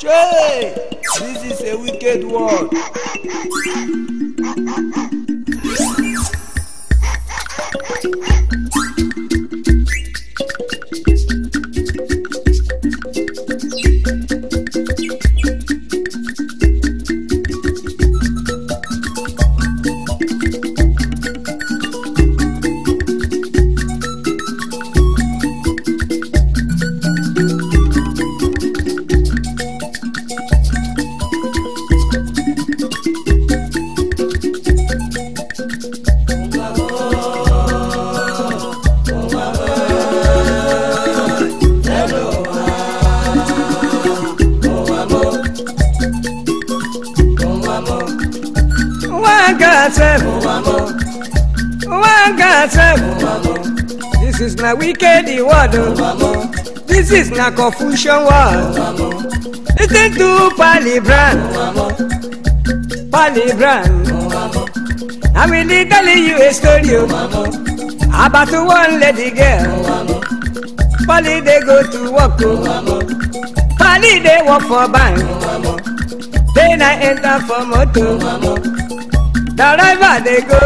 Jay, this is a wicked world. word this is na confusion word listen to palibran palibran I will be telling you a story about one lady girl Pali they go to work o Pali dey work for bank then I enter for motor the driver dey go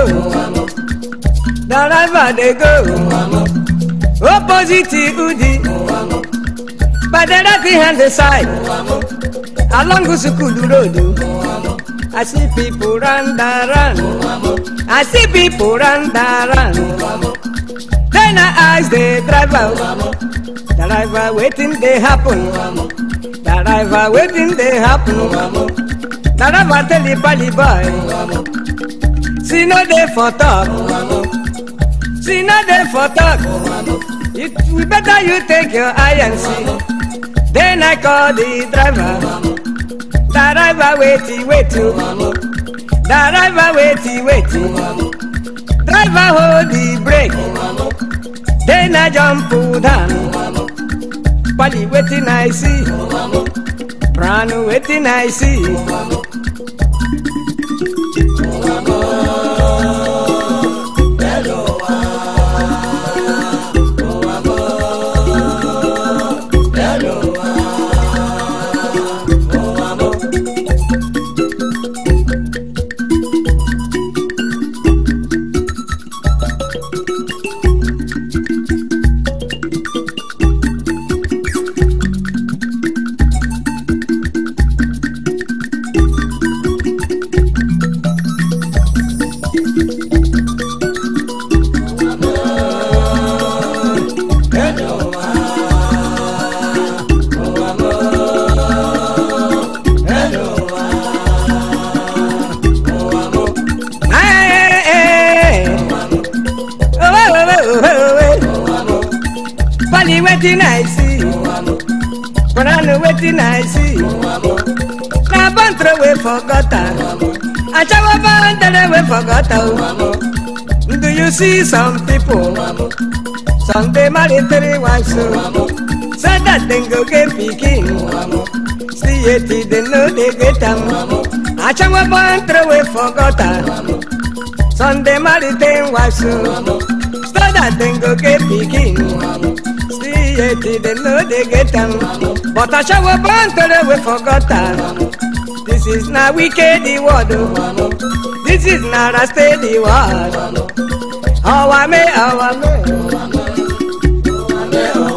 the driver dey go. Opposite Udi By the left hand side Along Sukulu Road I see people run da run I see people run da run Then I ask the driver The driver waiting they happen The driver waiting they happen The driver tell the bally boy See no day for talk See no day for talk You better you take your eye and see. Then I call the driver. The driver waity, waity, The oh. driver waity, waity, oh. Driver hold the brake. Then I jump down. Polly waiting I see. Pranu waiting I see. forgotten. Achawa band that oh. Do you see some people? Someday three wives so oh. said that go get picking. See it, dey know they get them. Achawa band that I some day Sunday military wives so oh. said that go get picking. See it, dey know they get them. But Achawa band that This is not wicked the word. Oh, oh. This is not raste the word. Our me, our me.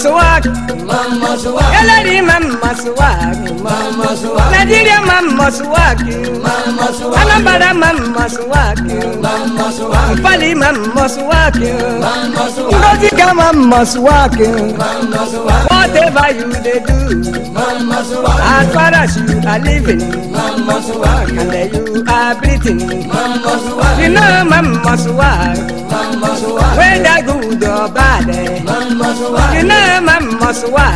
swag. Mama swag. Yeah, lady, mama swag. Mama swag. Nigeria, mama swag. Mama swag. Anambra, mama swag. Mama swag. Bali, mama swag. Mama swag. Ngozi, mama swag. Mama swag. whatever you dey do. Mama Suwaka. As far as you are living. Mama suwa, And then you are breathing. Mama suwa, You know Mama suwa. Mama suwa, Whether good or bad. Mama suwa, You know Mama suwa.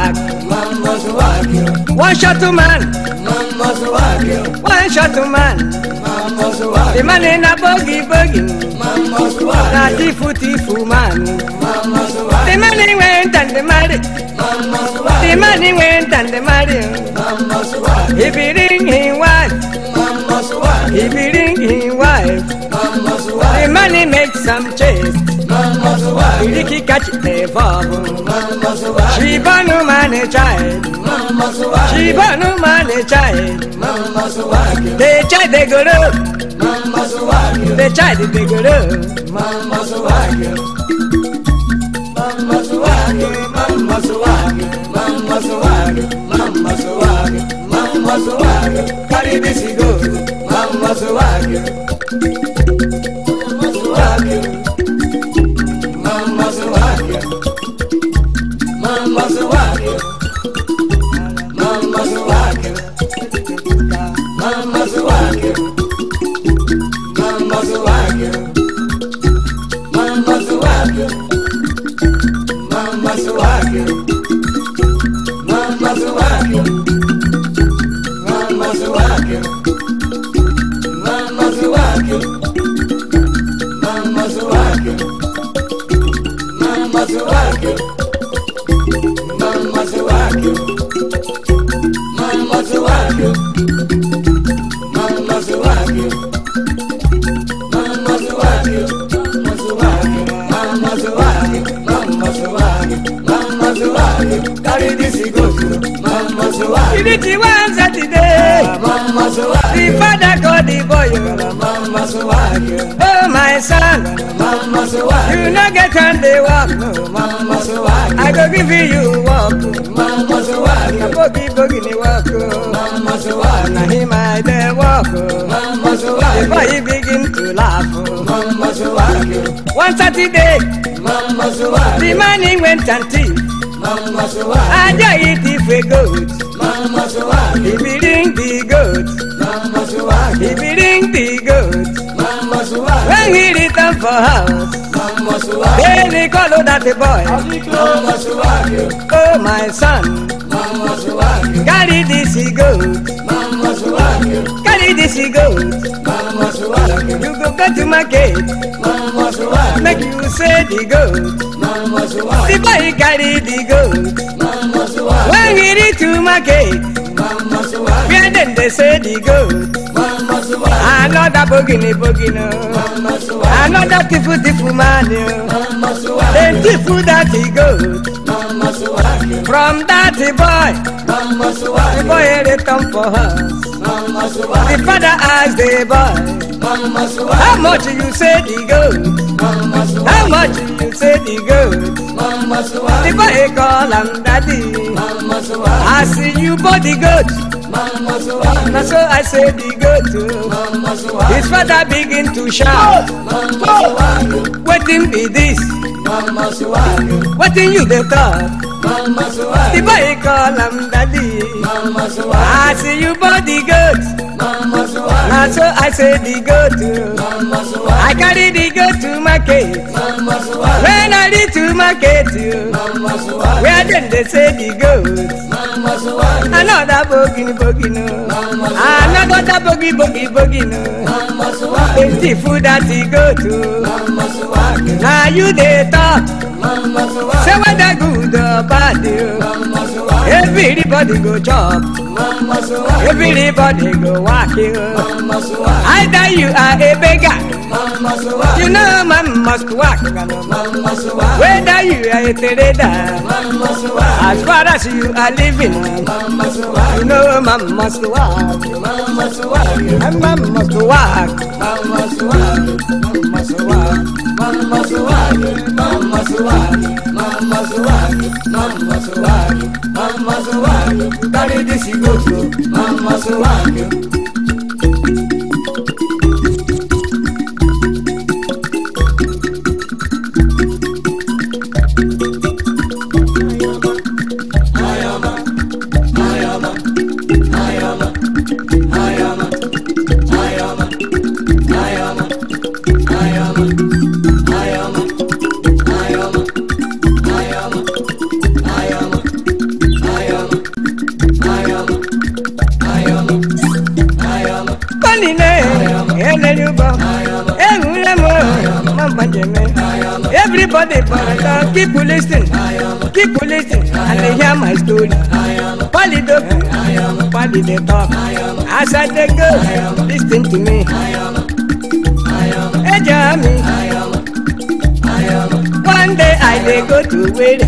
Mama suwa, One shot to man. Mama suwa, One shot to man. Mama suwa, The man in a boogie boogie. Mama suwa, Na tifu tifu man. Mama The money went and the money. The money went and the money. If he ring his wife. If he ring his wife. The money makes some change, chase. Ricky catch the bubble. She born no money child. She born no money child. They child they go up. They child they go up. Mama swag, mama swag, mama swag, mama swag, mama swag, Caribe Sigoto, mama swag. Divinity one Saturday. The father got the boy. Oh, my son. You no get on the walk. I go give you walk. I go give you walk. walk. Before he begin to laugh. One Saturday. The money went and thief. I just eat it for gold. Mama Swahili. If he ring the goat. Mama Swahili. If he ring the goat. Mama When he return for house. Mama Swahili. Then he call out that the boy. Oh my son. Mama Carry this goat. Mama Carry this goat. Mama You go go to market. Mama Make you say the goat. Mama The boy carry the goat. Mama When he did to my gate, we are then they say the goat. Another bogini bogino, another tifu tifu manu, then tifu that he goat. From that boy, the boy return eh, for us. The father asked the boy. Mama How much you say the goat? How much you say the goat? Mama Suwa. The boy call him daddy. Mama I see you body the goat. Mama so I say the goat. Mama His father begin to shout. Mama Suwa. Waiting be this. Mama Suwa. Waiting you the talk. Mama Suwa. The boy call him daddy. Mama I see you body the goat. Mama so I say the goat. go I carry the go to market. When I reach to market, where them they say the goat. Another bogey bogey no. Another bogey bogey bogey no. Empty food that he go to. Now you they talk. Say whether good or bad, everybody go chop. Everybody go walk you. Either you are a beggar. You know man must work. Whether you are a trader, as far as you are living, you know man must work. Man must work. Man must work. Man must work. Man must work. Man must work. Man must work. Man must work. Man must work. Man must work. Carry this you go to. Man must work. for the border. People listen, people listen, and they hear my story. Polly dope, polly the top. As I they go, listen to me. Hey, Jamie. One day I dey go to wait.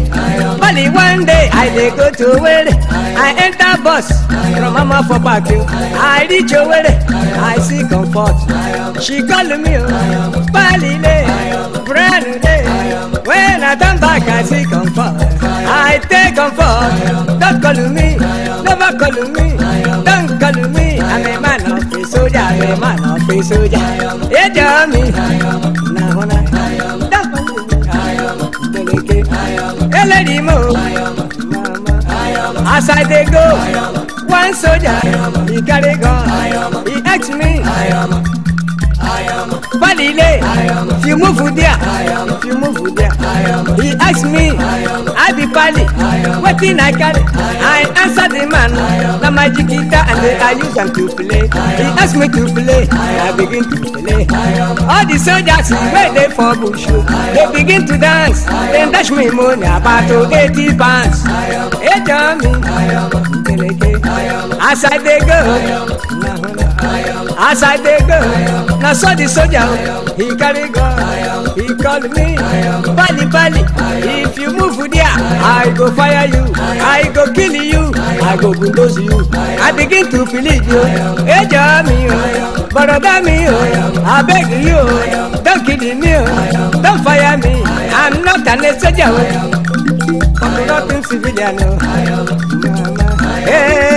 Bali one day I dey go to wait. I enter bus from mama for parking. I reach away. I see comfort. She call me, Polly. Oh. I don't back, I see comfort. I take comfort. Don't call me, never call me, don't call me. I'm a man of the soldier, I'm a man of the soldier. Yeah, tell me. Now, I don't call me. don't Hey, lady, mo. As I they go, one soldier, he carry gun, he asked me. Falile, you move with there, you move with there. He asked me, I be Pali, what thing I carry? I answer the man, the magic guitar and I use them to play. He asked me to play, I begin to play. All the soldiers where they for bush, they begin to dance, then dash me money about to pounds. Hey, tell me, as I they go, As I dey go, na so the soldier he carry gun. He call me, Bali Bali. If you move there, I go fire you. I go kill you. I go bulldoze you. I begin to feel believe you. Ejo mi o, boroda mi o, beg you don't kill me o, don fire me. I'm not an soldier o, I'm not a civilian o. Hey. Eh, eh, eh.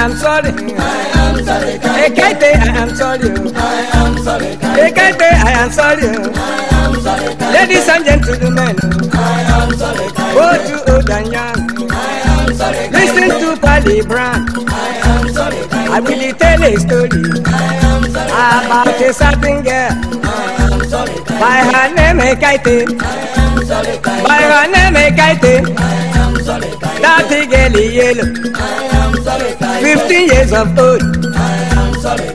am sorry. I am sorry. Ekete, I am sorry. I am sorry. Ekete, I am sorry. I am sorry. Ladies and gentlemen. I am sorry. Go to old and I am sorry. Listen to Pali Brown. I am sorry. I will tell a story. I am sorry. About a certain girl. I am sorry. By her name, Ekete. I am sorry. By her name, Ekete. I am sorry. That girl is yellow. I am Fifteen years of old. I am sorry.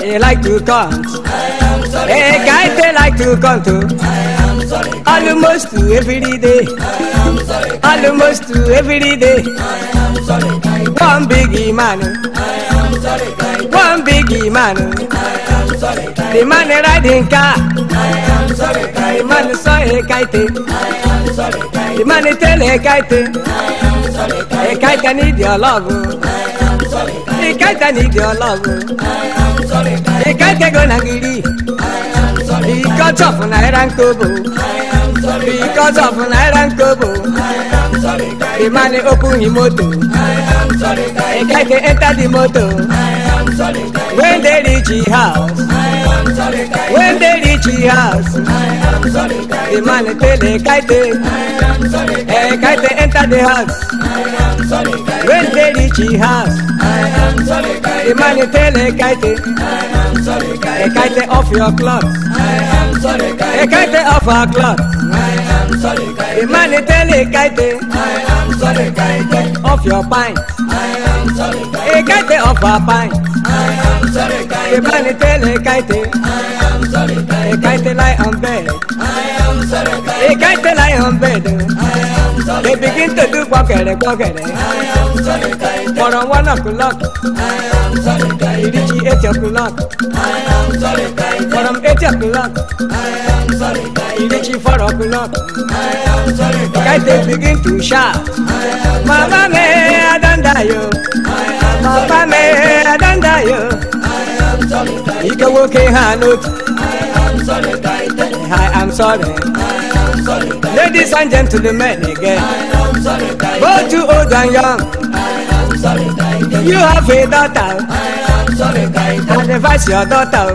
They like to come. I am sorry. Hey, guys, they like to come to. I am sorry. Almost every day. I am solitary. Almost every day. I am sorry. One big man. I am sorry. One big man. I am sorry. The man riding car. I am sorry. The man saw a kite. I am sorry. The man is telling a kite. A kite need your love. A kite need your love. A kite gonna get it. Because of Naira and Kobo. Because of Naira and Kobo. The man open his motor. A kite enter the motor. When they reach his house. When they reach his house. The man tell eh, the kite, eh kite enter the house. I am sorry, When they reach the house, the man tell eh, the kite, eh kite off your clothes, eh kite off our clothes. The man tell a kite, I am sorry kite, off your pants. I am sorry kite, a kite off a pants. I am sorry kite, the man tell a kite, I am sorry. Ekite lie on bed. I am sorry. Ekite lie on bed. I am sorry. They begin to do pocket, pocket. I am sorry. For a one o'clock. I am sorry. It is eight o'clock. I am sorry. For an eight o'clock. I am sorry. It is four o'clock. I am sorry. Ekite begin to shout. Mama me, I don't die yo. Papa me, I don't die yo. Ike nwoke ha n'otu sorry, I am sorry. Ladies and gentlemen again. I am Both you old and young. You have a daughter. I And advise your daughter.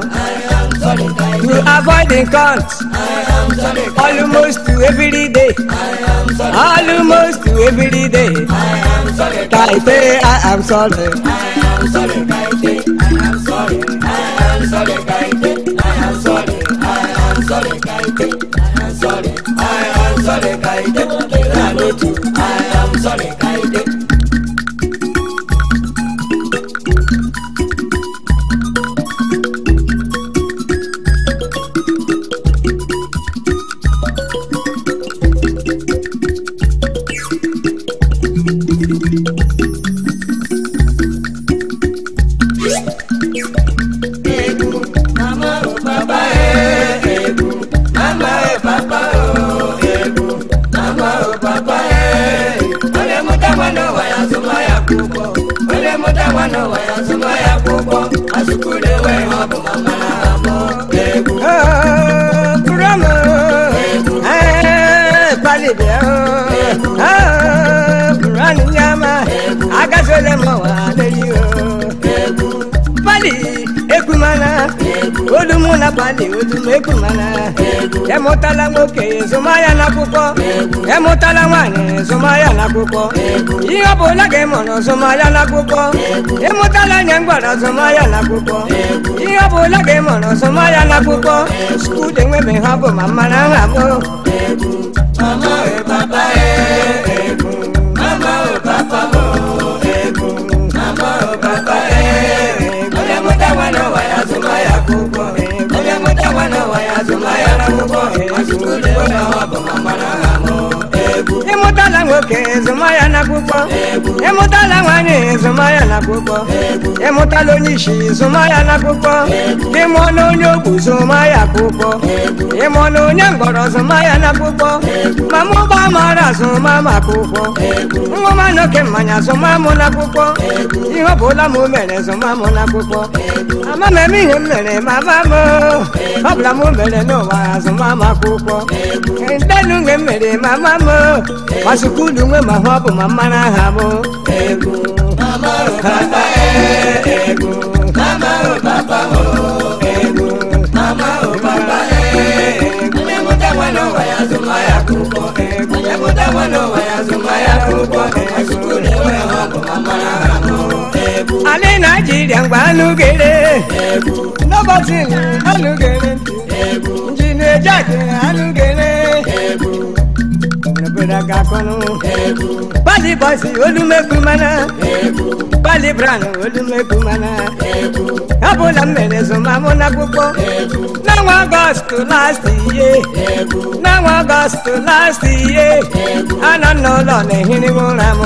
To avoid the count. Almost to every day. Almost to every day. I am sorry. I am sorry. ihe ọ bụla gị mụrụ zụmaya n'akwụkwọ ịmụtala anya mgbara zụmaya n'akwụkwọ ihe ọ ga gị na zụmaya n'akwụkwọ skuul enwebe ha bụ ma mara eh, nha eh, bụ eh, oke zụma ya na akwụkwọ ịmụtala nwanyị zụma ya na akwụkwọ ịmụtala onye isi zụma ya na akwụkwọ ịmụ na onye ogbu zụma ya akwụkwọ ịmụ na onye mgbọrọ zụma ya na akwụkwọ mama ụgbọ mara zụma m akwụkwọ nwụma na oke mmanya zụma m na akwụkwọ ihe ọ bụla m mere zụma m na akwụkwọ ama m eme ihe m mere mama m ọ bụla m mere n'ụwa zụma m akwụkwọ ndenu mgbe m mere mama m masukwu ulu nwe ma ọ bụ ma egwu e, egwu mụ egwu e, ya akwụkwọ ya akwụkwọ ha ọbụ ma mmara aha naijiria mgbe anụgere n'ụbọchị anụgere na-eje anụgere obodo ga-akọnụ pali bọsi olumekwu mana pali bran olumekwu mana abụla m mere zụmamụ n'akwụkwọ n'ọnwa ọgọst last iye n'ọnwa ọgọst last iye anọ m n'ụlọ na-ehiri m ụra m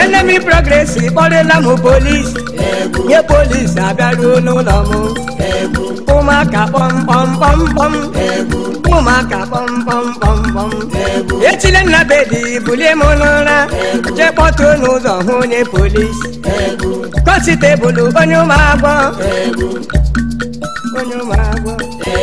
enemi progresi kpọrịla m polis nye polis abịaruo n'ụlọ m ụmụaka kpọmkpọmkpọmkpọm ụmụaka kpọmkpọmkpọmkpọm etile nna bebi bulie m n'ụra jee kpọtuo n'ụzọ hụ onye polisi kọnsitebụlụ onye ụmụagbọ onye ụmụagbọ e,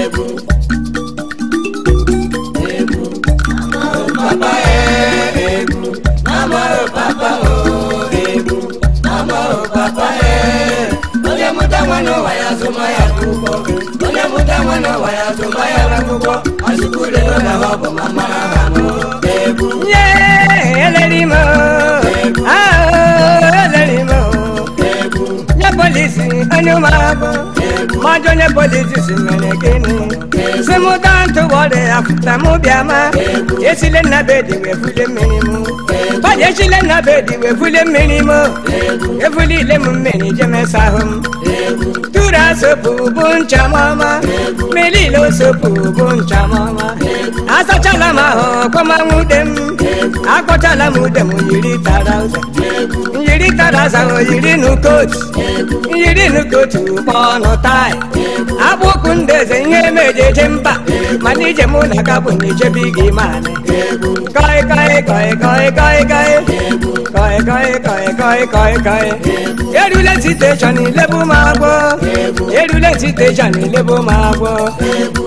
Papa, eh, onye mụta ya kuko Onye mụta nwa na nwa ya tụba ya n'akwụkwọ Ọsịkwụde nọ na ọ bụ mama ha nọ Egwu Nye eleri m eleri m Egwu Nye polisi onye ụmụ abụ Mọjọ polisi si mere gịnị Si mụta ntụgbọ dị afụta mụ bịa ma Esile nna be wee fule mmiri mụ Baje esile nna be wee fule mmiri mụ Efule m mmiri jemesa m Uda sopu buncha mama Melilo sopu buncha mama Asachala maho kwa mamudem Akochala mudem yiri tarauza yiri kadaza yiri kootu. yiri n'ukotu kpọ ọnụ taị akpụkpụ ndeze ihe emejeje mba mana ije mụ na ka bụ na-ejebe gị maanị kọi Kọị kọị kọị kọị kọị kọị. Kọị kọị kọị kọị kọị erule siteshọn ilebu m agwọ erule siteshọn ilebu m agwọ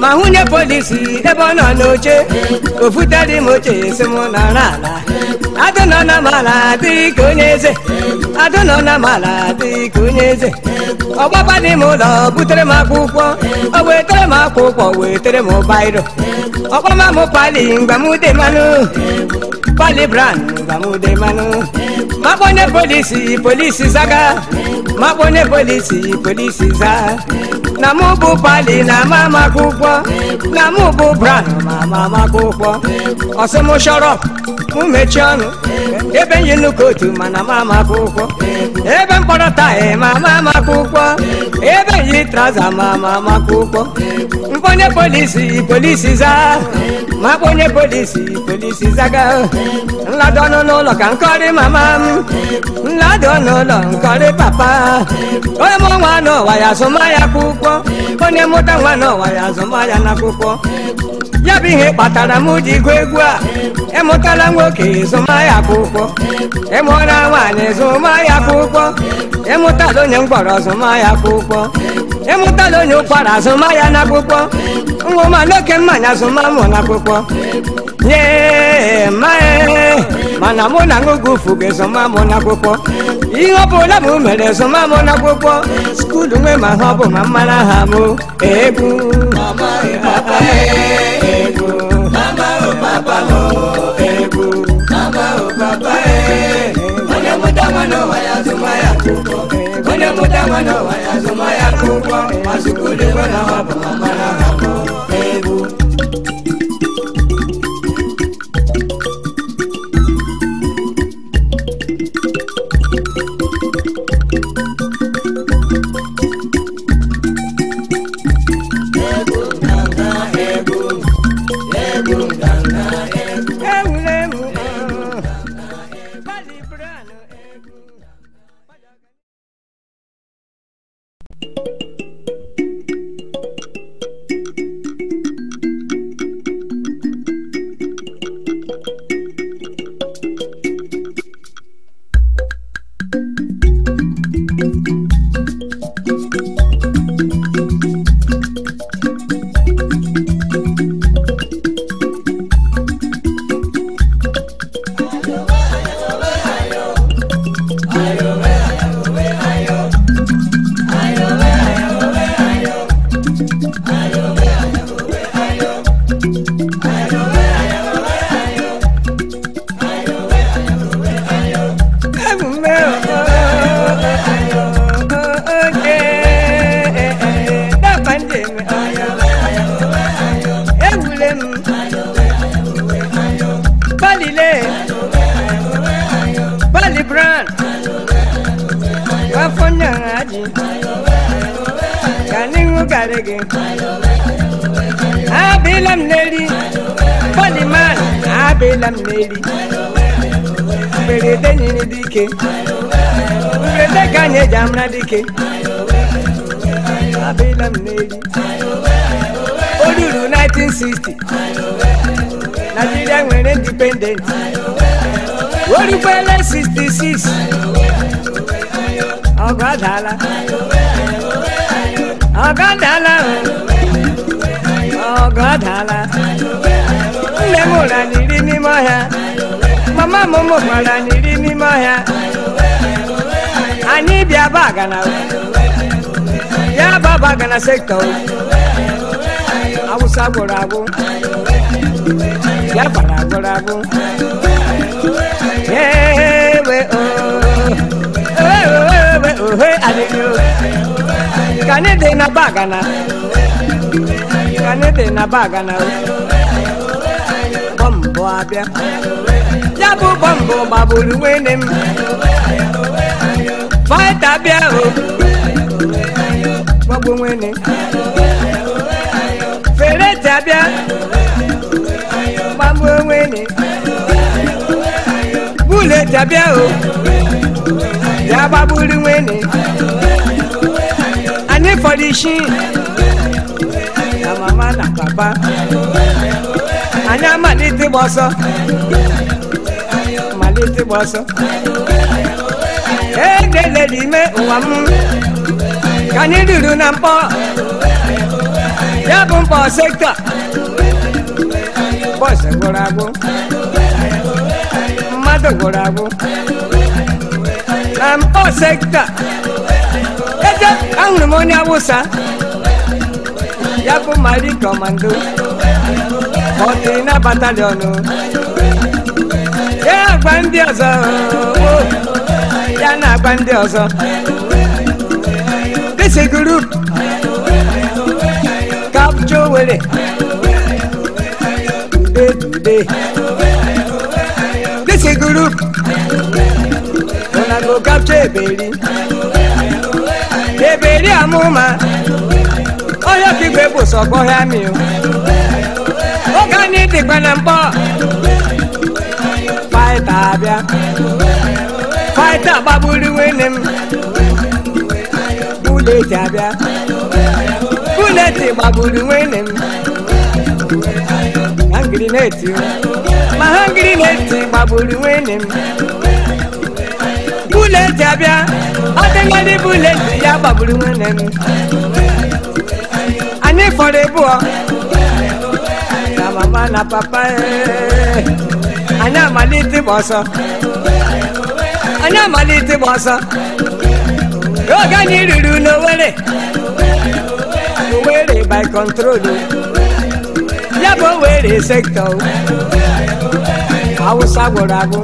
ma hụnye polisi ebe ọ nọ n'oche ofutere m oche esi mụ na ala adụ nọ na mala dị onye eze adụ nọ na mala dị onye eze ọgbaba dị m ụlọ butere m akwụkwọ ọ wetere m akwụkwọ wetere m bairo ọgbama m pali mgbamude manụ pali bran mgbamude manụ. makpọnye polisi polisi zaga makpọnye polisi polisi za na mụ pali na ama amaka ụgwọ na mụ bụ bran ma ama amaka ụgwọ ọsị m chọrọ mụ mechie ọnụ ebe nyi nnukwu otu mana ma amaka ụgwọ ebe mkpọrọ taị ma ama amaka ụgwọ ebe yi traza ma ama amaka ụgwọ mkpọnye polisi polisi za makpọnye polisi polisi zaga nladọnụ n'ụlọ ka nkọrị mama m ndonono nkore papa onye mụ nwana ọwa ya azụmahịa akwụkwọ onye mụta nwana ọwa ya azụmahịa n'akwụkwọ ya bụ ihe kpatara m ji gụọ egwu a ịmụtala nwoke ịzụmahịa akwụkwọ ịmụọla nwaanyị zụmahịa akwụkwọ ịmụtala onye mkpọrọ zụmahịa akwụkwọ ịmụtala onye ụkwara azụmahịa n'akwụkwọ nwa ụma n'oke mmanya zụmamụ n'akwụkwọ nye mae mana mụ na ṅụgụ ufu ga-ezoma mụ n'akwụkwọ ihe ọ bụla mụ mere ezoma mụ n'akwụkwọ skuulu nwe ma ha ọ bụ ma mmara ha mụ egwu egwu onye mụtama n'ụwa ya zụma ya akwụkwọ onye mụtama n'ụwa ya zụma ya akwụkwọ ma skuulu nwe na ọ bụ mama ike abilam n'eli olulu 1960 Nigeria nwere independent orikwele 66 ọgọ adala ọgọ adala ọgọ adala nne m ụra n'iri n'ime ọhịa mama m mụkwara n'iri n'ime ọhịa Ani bia bagana we. Ya ba bagana sekta we. Awu saborago. Ya baragorago. Hey we oh. Hey we we oh hey ani yo. Kane de na bagana. Kane de na bagana we. Bombo abia. Ya bu bombo babulu wenem faita bia o gbogbo nwene fere tabia gbogbo nwene bule tabia o yaba buli nwene ani fọdisi na mama na papa anyị amalite gbọsọ amalite gbọsọ. jele n'ime ụwa m ka anyị ruru na mkpọ ya bụ mkpọ sekta bọsụ gwụrụ agwụ mmadụ gwụrụ agwụ na mkpọ sekta eje ahụrụ m onye awụsa ya bụ mari kọmando ọ dị na ya gba ndị ọzọ ya na-agba ndị ọzọ disi group kapcha owere ude ude disi group una go kapcha eberi eberi amụma onye ọkaigwe bụ sọkọ ya mi oge anyị dịkwa na mkpọ faịta abịa Maịta gbagburu nwunye m ji abịa bulet gbagburu nwunye m hangirineti ma hangirineti gbagburu nwunye m ji abịa ọdịnadị bulet ya gbagburu nwunye m anyị fọrọ ịbụọ na mama na papa eh. anyị amalite ịgba ọsọ ana amalite m ọsọ oge anyị ruru n'owere owere by control ya bụ owere sektọ awụsa gwụrụ agwụ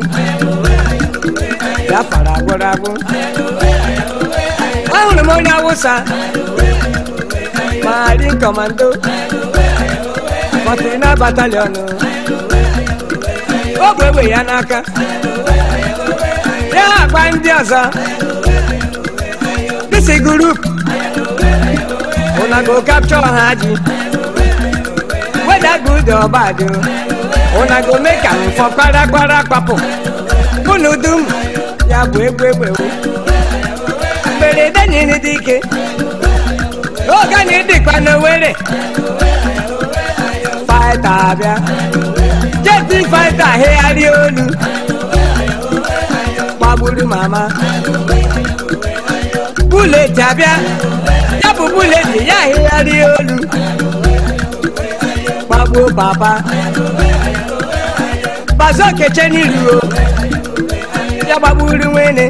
biafara gwụrụ agwụ ahụrụ m onye awụsa mari kọmando fọtina batalion ọ bụ egbe ya n'aka ya akpa ndị ọzọ this group una go capture ha ji whether good or bad una go make am for kparagbara kpapụ unu dum ya bụ egwu egwewo mberede nyere dị ike oge anyị dịkwa n'owere faịta abịa jeti faịta hegharịa olu buru mama. Bule jabia, yabu bule di ya hiyari olu. babu papa, bazo keche nilu o. Yaba buru wene,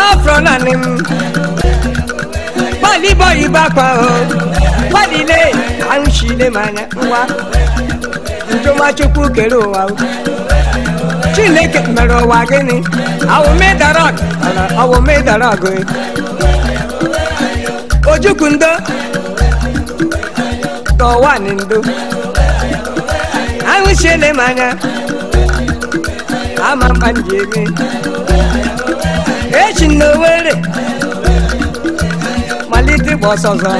afro nanim. Bali boy bakwa o, bali le, anshi manya nwa. Ntoma chukwu kere ụwa chineke mere ụwa gịnị awụmedara ọgụ ojukwu ndo tọwani ndo ahụchiele m anya ama mkpa m ji eme echi na owere malite ịgba ọsọ ọzọ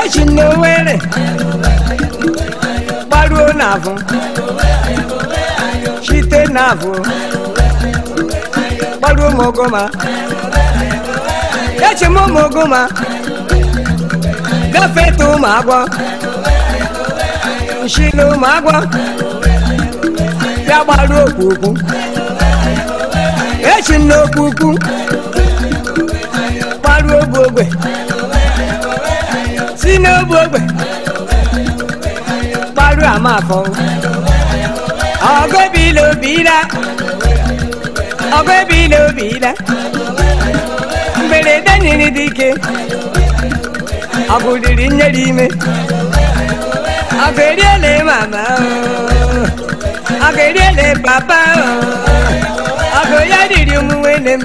echi na owere gbaruo chite navo kpọrọ mogoma eche m mogoma gafeta ụmụ agwọ nshile ụmụ agwọ ya gbaru okpukwu echi m n'okpukwu gbaru ogbe ogbe si n'ogbe ogbe gbaru amafọ ọgọ bi lo bi bìlà bìlà mberede nyere dị ike ọgụ riri nyere ime ọgụ eriele mama ọgụ eriele papa ọgụ ya riri ụmụ nwene m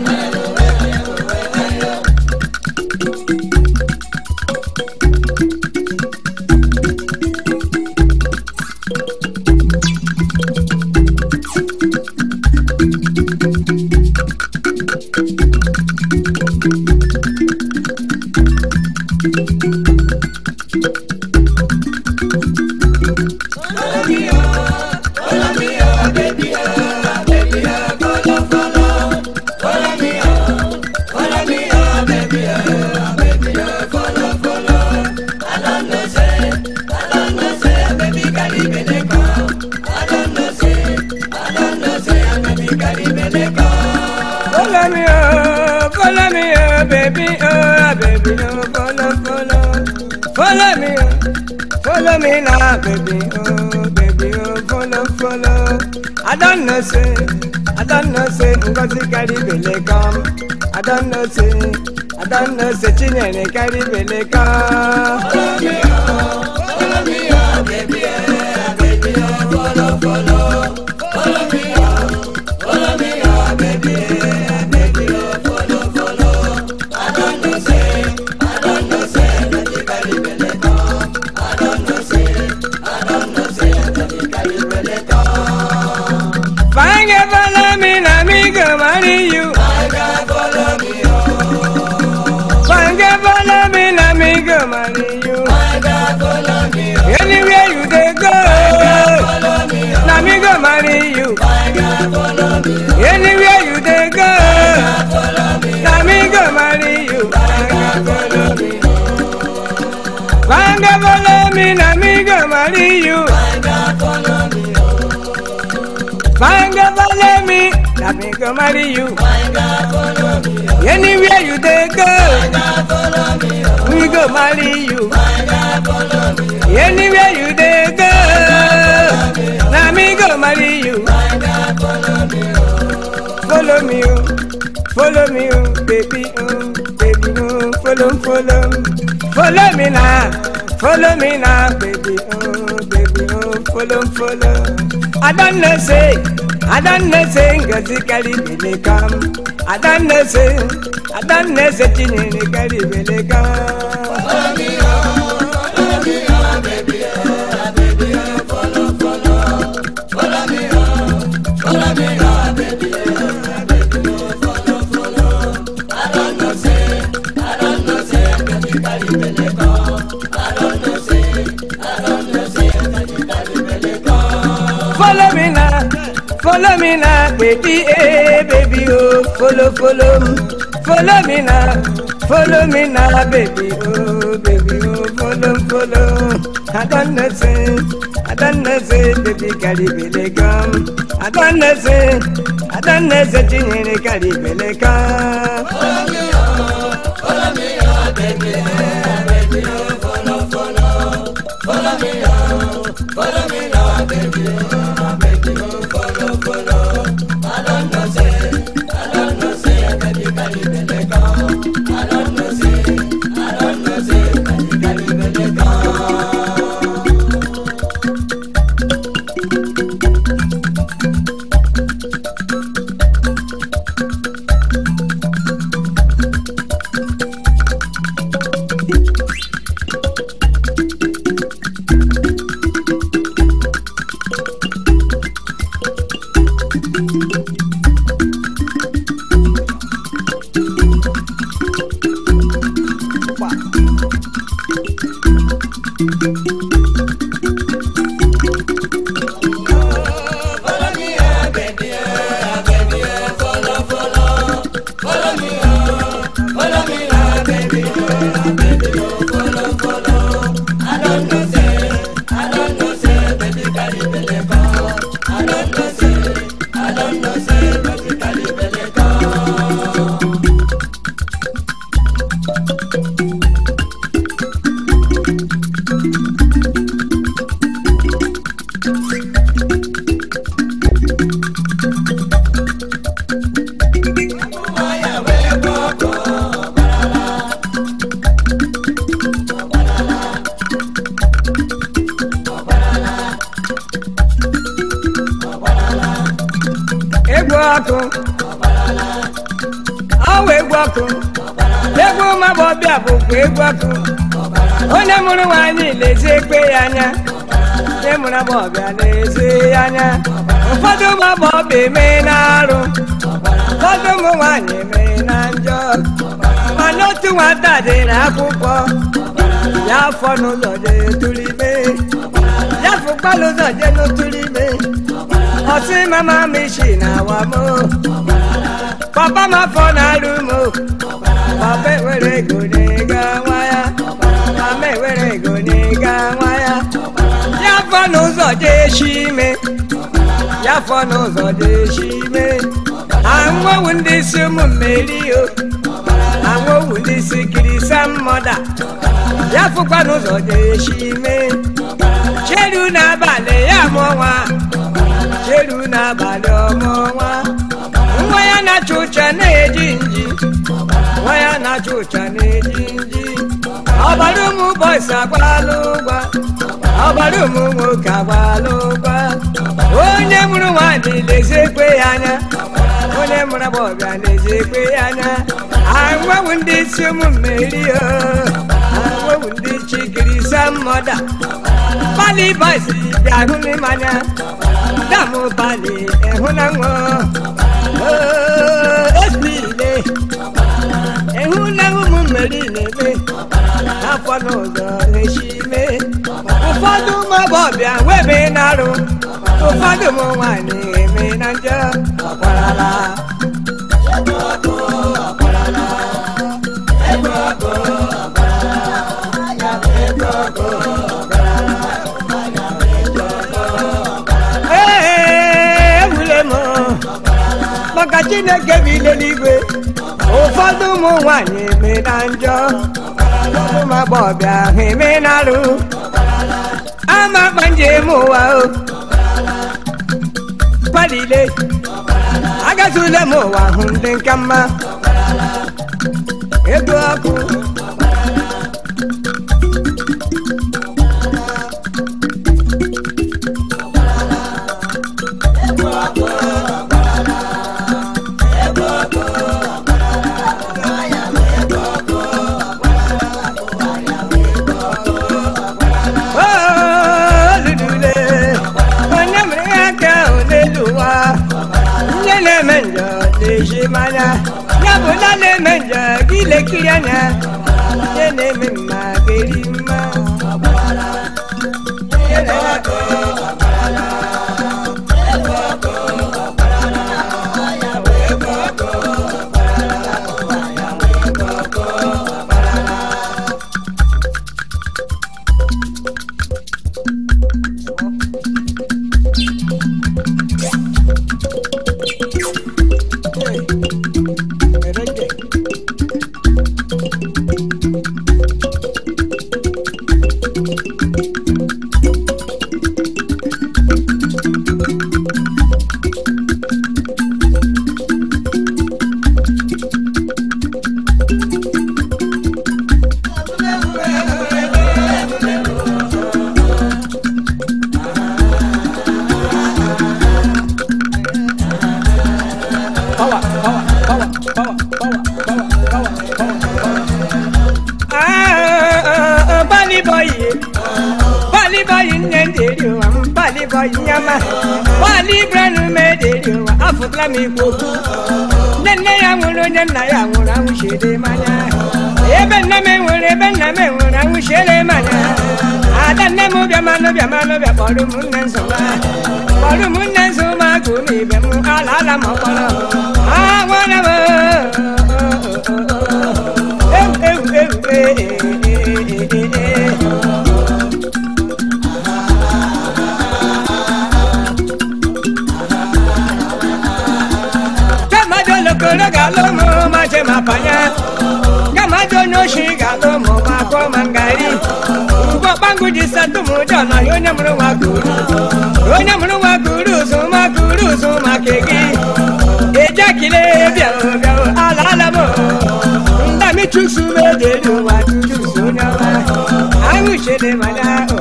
baby, oh, baby, oh, follow, follow. I don't know, say, I don't know, say, Ngozi carry bele come. I don't know, say, I don't know, say, Chinyere carry bele come. Follow me, oh. Find a follow me, Let me go marry you. Find a follow me. Oh. Anywhere you take go, find a follow me. Oh. We go marry you. Find a follow me. Oh. Anywhere you take go, now me go marry you. follow me. Oh. Follow me, oh. follow me, oh. baby, oh. baby, oh. follow, follow, follow me now, follow me now, baby, oh, baby, oh, follow, follow. adanna say adanna say ngozi karibele kam adanna say adanna say Follow me now, baby, hey, eh, baby, oh. Follow, follow, follow me now. Follow me now, baby, oh, baby, oh. Follow, follow. I don't know, say, I don't baby, carry me come. I don't know, say, Follow me, oh, follow me, oh, baby, hey, baby, oh. Follow, follow, follow me, oh, follow me now, baby, oh. oh. ọkụ egwu ụmụ bụkwa egwu ọkụ onye mụrụ nwaanyị lezie ekpe ya anya onye mụrụ ọbịa na-ezi ya anya ụfọdụ ụmụ ọbịa emee na arụ ụfọdụ ụmụ nwaanyị emee na njọ mana otu nwata dị akwụkwọ. ya afọ n'ụzọ jee tụrụ ime ya fụkpala ụzọ jee n'otụrụ ime ọsị mama m isi na awa m papa ma fọ n'alụ m o papa ewere ego n'ịga nwa ya mama ewere ego n'ịga nwa ya ya fọ n'ụzọ dị echi ime ya fọ n'ụzọ dị echi ime anwụwu ndị isi ụmụ mmeri o anwụwu ndị isi kirisa mmoda ya fụkwa n'ụzọ dị echi ime cheru n'abalị ya mụọ nwa cheru n'abalị ọmụọ nwa nwa ya na-achụ ụcha na-eji nji nwa ya na ụcha na-eji nji ọbara ụmụ bọịs agbalụ ụgwa ọbara ụmụ nwoke agbalụ ụgwa onye mụrụ nwanyị na-ezi ekwe ya anya onye mụrụ agbọghọbịa na-ezi ekwe ya anya ahụhụ ndị isi ụmụ mmeri ahụhụ ndị chikiri samọda bali bọịs bịa hụ n'ime anya damu ịhụnanwụ Esbile Ehulehu mmerilebe Afọnụ ụzọ eshime Ụfọdụ mabọbịa webe na-arụ Ụfọdụ ụmụ nwaanyị eme na njọ ọkwarala ndị na-ege m n'igwe ụfọdụ ụmụ nwanyị eme na njọ ụfọdụ ụmụ agbọghọbịa ahụ eme na arụ ama akpa njem ụwa o palile agazula m ụwa hụ ndị nka mma ego ọkụ na-ekiri anya nke na mele benna me wona ushele mana adanne mu bia mano bia mano bia bolu munne nzuma bolu munne nzuma kuni bia mu alala mokolo ah wona e, e, e, bo eu eu eu Kama jolo kolo galo mo ma je ma panya Kama jolo shiga ko mangari ugo bangu jisa tumu jana yo nyamru wa guru yo nyamru wa guru suma guru suma kegi eja kile bia bia ala ala mo ndami chuksu be de wa chuksu nyawa ayu shede mana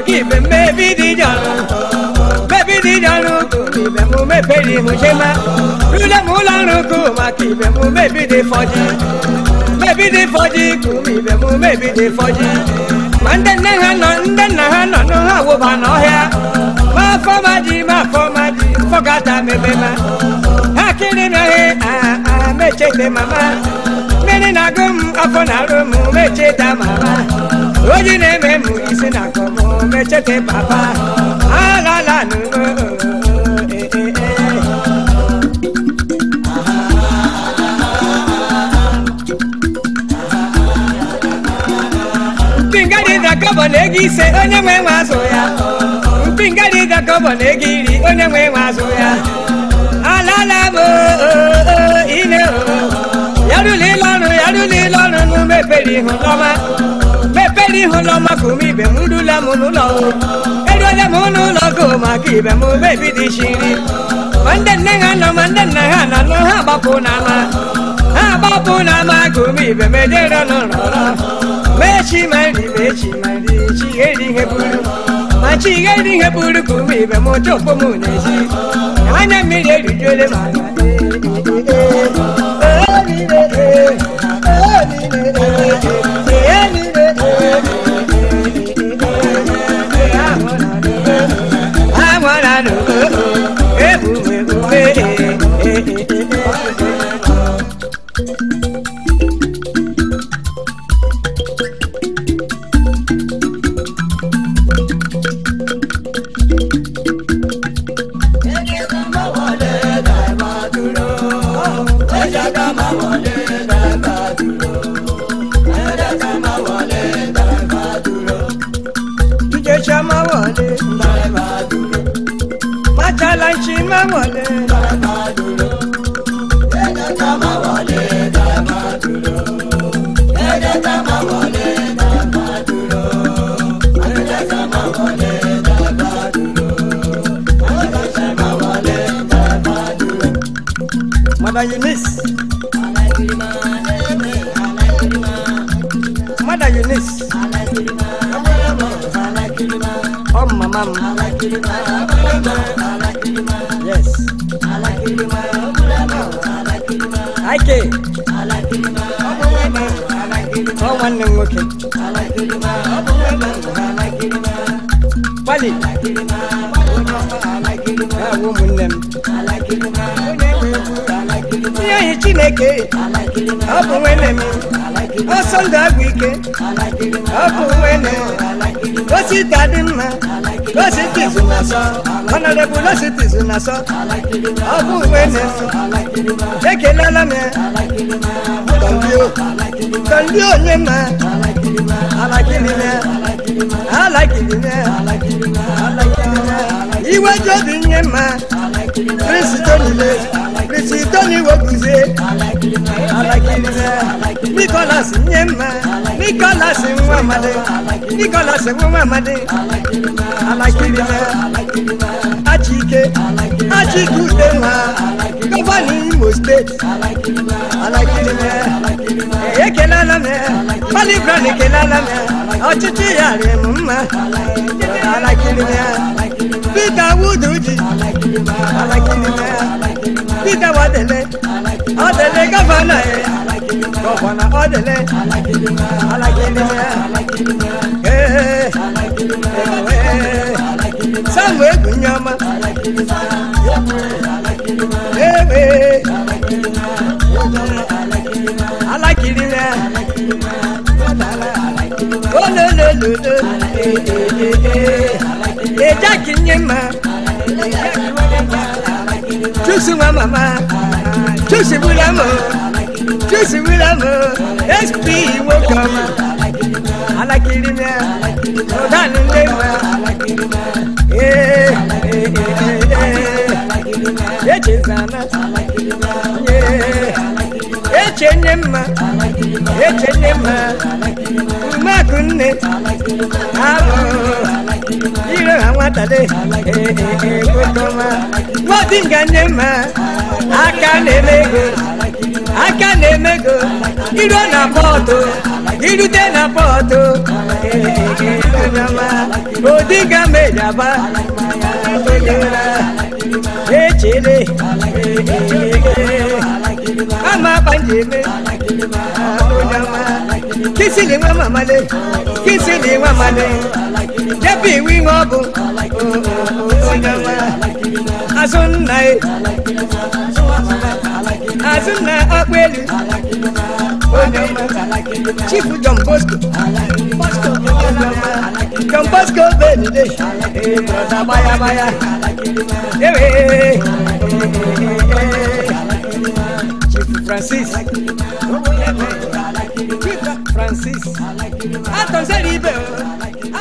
ki be me bi di janu me bi di janu ko mi be mu me pe di mu se ma lule mu la run ko ma ki be mu me bi di foji me bi di foji ko mi be mu me bi di foji mande ne ha no nde na ha no no ha wo ba no he ma fo ma ji ma fo ma ji fo ga ta me be ma ha kiri me he ah ah me che te mama me ni na gum afo na rum me che ta mama oji na-eme mụ isi na akọmọ mechete papa aghala n'ugo kọbọ na e, e, e, ego ise onye nwe nwe azụ ya mpi nga dị kọbọ na ego iri onye nwe nwe azụ ya alala bụ ile yarụla ile ọrụ yarụla ile ọrụ n'ume pere ihu n'ọma ebere ihu n'ọgbakọ m ibe m rula m n'ụlọ eruola m n'ụlọ gụ maka ibe m ebi dị shiri ma ndị nne ha nọ ma ndị nna ha na anọ ha gbapụ n'ama. ha gbapụ n'ama ama gụ m ibe m edere n'ụlọ mechi ma nri ma nri ihe buru ma chi eri ihe buru ibe m m anya mmiri erijuole ma I wanna know. ike ọ bụ nwene m ọsọ ndụ agwụ ike ọ bụ nwene osita dị mma lọsitizu na sọ ọnọdebụ lọsitizu na sọ ọ bụ nwene ekelela m tọndi onye ma alakilime alakilime alakilime iweji obi nye mma kristo niile kristo niwe guzie nikolas nye mma nikolas nwa amadi nikolas nwa amadi alakirima. Ajike, Ajikudema, Governor Imo State, Alaikirima, Ekelalame, Malibran Ekelalame, ọ̀chịchị ya rịrị m mma, Alaikirima, Peter Wuduji, Alaikirima, Peter Wadele, Adele Governor ya, Governor Adele, Alaikirima, Alaikirima, Ee, Alaikirima. na mgbe egwu nyama ewe alakirire olelelele ejaki nye ma chusi nwa mama chusi wula mo chusi wula mo sp nwoke ọma alakirire ọdani nne ma. echezana eche nne mma eche nne mma mmadụ nne alụ ire ha nwatade eegotọma nwadinga nne mma aka na-eme ego aka na-eme ego iru na pọtụ irute na pọtụ Odinga mejaba Echele Ama banjeme Kisi ni mama male Kisi ni mama le Jebi wi ngobu Odinga Azunna Azunna akwelu Chief John Bosco. John Bosco bẹ́ẹ̀ni dé. Bọ̀dà báyàbáyà. Ewé. Chief Francis. Chief Francis. Àtọ̀sẹ̀ ní ibẹ̀ o.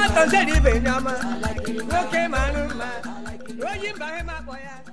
Àtọ̀sẹ̀ ní ibẹ̀ ni a máa. Lókè màánú màá. Lóyìn